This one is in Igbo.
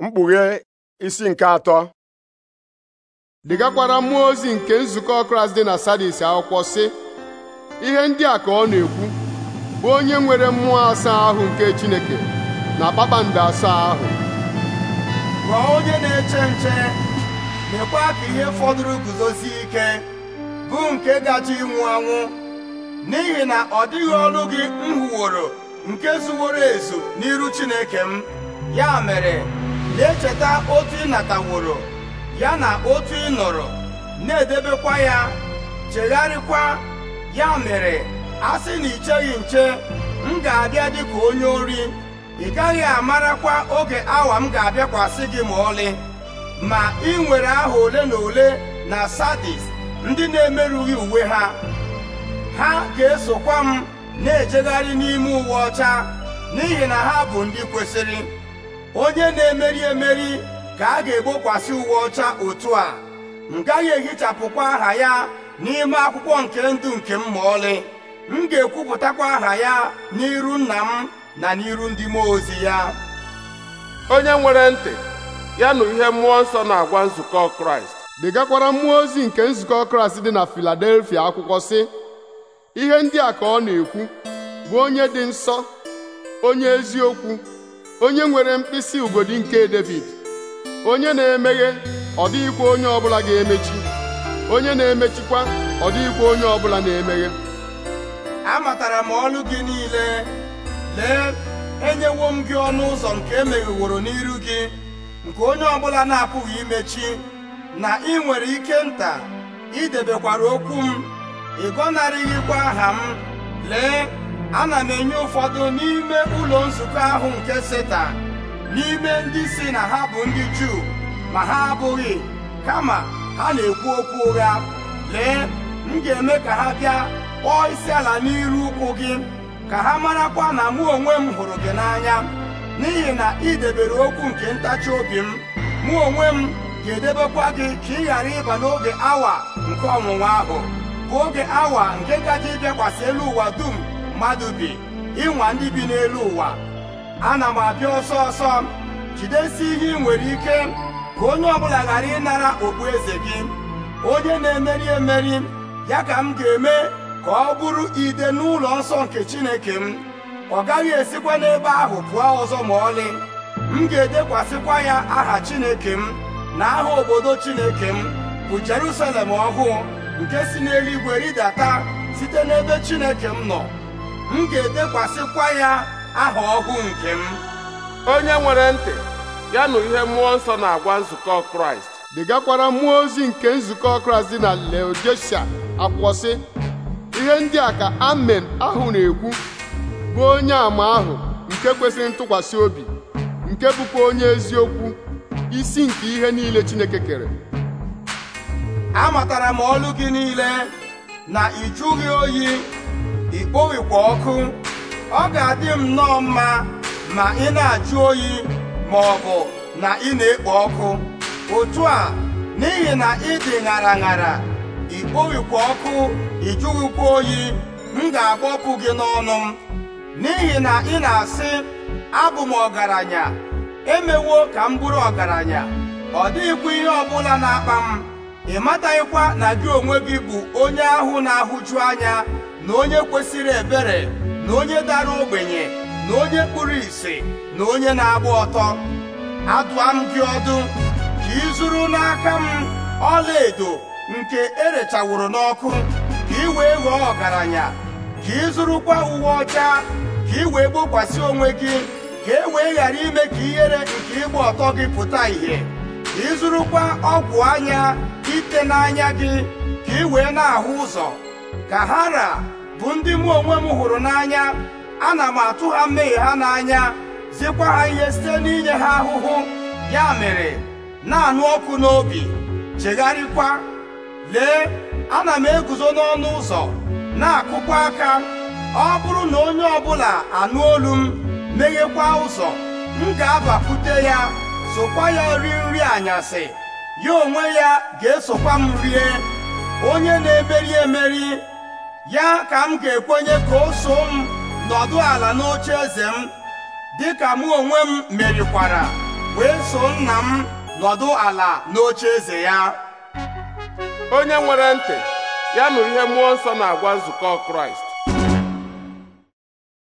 mkpughe isi nke atọ degakwara mmụọ ozi nke nzukọ Kraịst dị na Sadis akwụkwọ sị ihe ndị a ka ọ na-ekwu bụ onye nwere mmụọ asaa ahụ nke Chineke na kpakpando asaa ahụ gwa onye na-eche nche mekwa ka ihe fọdụrụ guzozi ike bụ nke gaji ịnwụ anwụ n'ihi na ọ dịghị ọlụ gị m hụworo nke zuworo ezu n'iru Chineke m ya mere na-echeta otu ị nataworo ya na otu ị nọrọ na-edebekwa ya chegharịkwa ya mere a sị na icheghị nche m ga-abịa dịka onye ori ị gaghị amarakwa oge awa m ga-abịakwasị gị ma ọlị ma ị nwere aha ole na ole na sadis ndị na-emerụghị uwe ha ha ga-esokwa m na-ejegharị n'ime uwe ọcha n'ihi na ha bụ ndị kwesịrị onye na-emeri emeri ka a ga-egbokwasị uwe ọcha otu a m gaghị ehichapụkwa aha ya n'ime akwụkwọ nke ndụ nke m ma ọlị m ga-ekwupụtakwa aha ya n'iru nna m na n'iru ndị mmụọ ozi ya onye nwere ntị ya nụ ihe mmụọ nsọ na-agwa nzukọ kraịst degakwara mmụọ ozi nke nzukọ kraịst dị na filadelfia akwụkwọ sị ihe ndị a ka ọ na-ekwu bụ onye dị nsọ onye eziokwu onye nwere mkpịsị ugodi nke David onye na-emeghe ọ dịghịkwa onye ọbụla ga-emechi onye na-emechikwa ọ dịghịkwa onye ọbụla na-emeghe amatara m ọlụ gị niile lee enyewo m gị ọnụ ụzọ nke emegheworo n'iru gị nke onye ọbụla na-apụghị imechi na ị nwere ike nta idebekwara okwu m ịgọnarịghịkwa aha m lee ana m enye ụfọdụ n'ime ụlọ nzukọ ahụ nke setan n'ime ndị si na ha bụ ndị juu ma ha abụghị kama ha na-ekwu okwu ụgha lee m ga-eme ka ha bịa kpọọ isi ala n'iru ụkwụ gị ka ha marakwa na mụ onwe m hụrụ gị n'anya n'ihi na ị debere okwu nke ntachi obi m mụ onwe m ga-edebekwa gị ka ị ghara ịba n'oge awa nke ọnwụnwa ahụ bụ oge awa nke gaji ịbịakwasị elu ụwa dum mmadụ bi ịnwa ndị bi n'elu ụwa ana m abịa ọsọ ọsọ jidesi ihe ị nwere ike ka onye ọbụla ghara ịnara okpueze gị onye na-emeri emeri ya ka m ga-eme ka ọ bụrụ ide n'ụlọ nsọ nke Chineke m ọ gaghị esikwa n'ebe ahụ pụọ ọzọ ma ọlị m ga-edekwasịkwa ya aha Chineke m na aha obodo Chineke m bụ Jerusalem ọhụụ nke si n'eluigwe rịdata site n'ebe Chineke m nọ m ga-edekwasịkwa ya aha ọhụụ nke m onye nwere ntị ya nụ ihe mmụọ nsọ na-agwa nzukọ kraịst dịgakwara mmụọ ozi nke nzukọ kraịst dị na leodesia akwụkwọ sị ihe ndị a ka amen ahụ na-ekwu bụ onye àmà ahụ nke kwesịrị ntụkwasị obi nke bụkwa onye eziokwu isi nke ihe niile chineke kere amatara m olu gị niile na ịjụghị oyi ikpowikwa ọkụ ọ ga-adị m nnọọ mma ma ị na-ajụ oyi ma ọ bụ na ị na-ekpo ọkụ otu a n'ihi na ị dị ṅara ṅara ikpowikwa ọkụ ịjụghịkwa oyi m ga-agbọpụ gị n'ọnụ m n'ihi na ị na-asị abụ m ọgaranya emewo ka m bụrụ ọgaranya ọ dịghịkwa ihe ọbụla na-akpa m ị mataghịkwa na gị onwe gị bụ onye ahụ na-ahụju anya na onye kwesịrị ebere na onye dara ogbenye na onye kpụrụ ìsì na onye na-agba ọtọ adụa m gị ọdụ ka ị zụrụ n'aka m ọla edo nke erechawụrụ n'ọkụ ka ị wee ghọọ ọgaranya ka ị zụrụkwa uwe ọcha ka ị wee gbokwasị onwe gị ka e wee ghara ime ka ihere nke ịgba ọtọ gị pụta ìhè ka ị zụrụkwa ọgwụ anya ite n'anya gị ka ị wee na-ahụ ụzọ kahara bụ ndị mụ onwe m hụrụ n'anya ana m atụ ha mmehie ha n'anya zikwa ha ihe site n'inye ha ahụhụ ya mere na-anụ ọkụ n'obi chegharịkwa lee ana m eguzo n'ọnụ ụzọ na-akụkwa aka ọ bụrụ na onye ọbụla anụ olu m meghekwa ụzọ m ga-abakwute ya sokwa ya rie nri anyasị ya onwe ya ga-esokwa m rie onye na-emeri emeri ya ka m ga-ekwenye ka o so m nọdụ ala n'oche eze m dịka mụ onwe m merikwara wee so nna m nọdụ ala n'oche eze ya onye nwere ntị ya nụrụ ihe mmụọ nsọ na-agwa nzukọ kraịst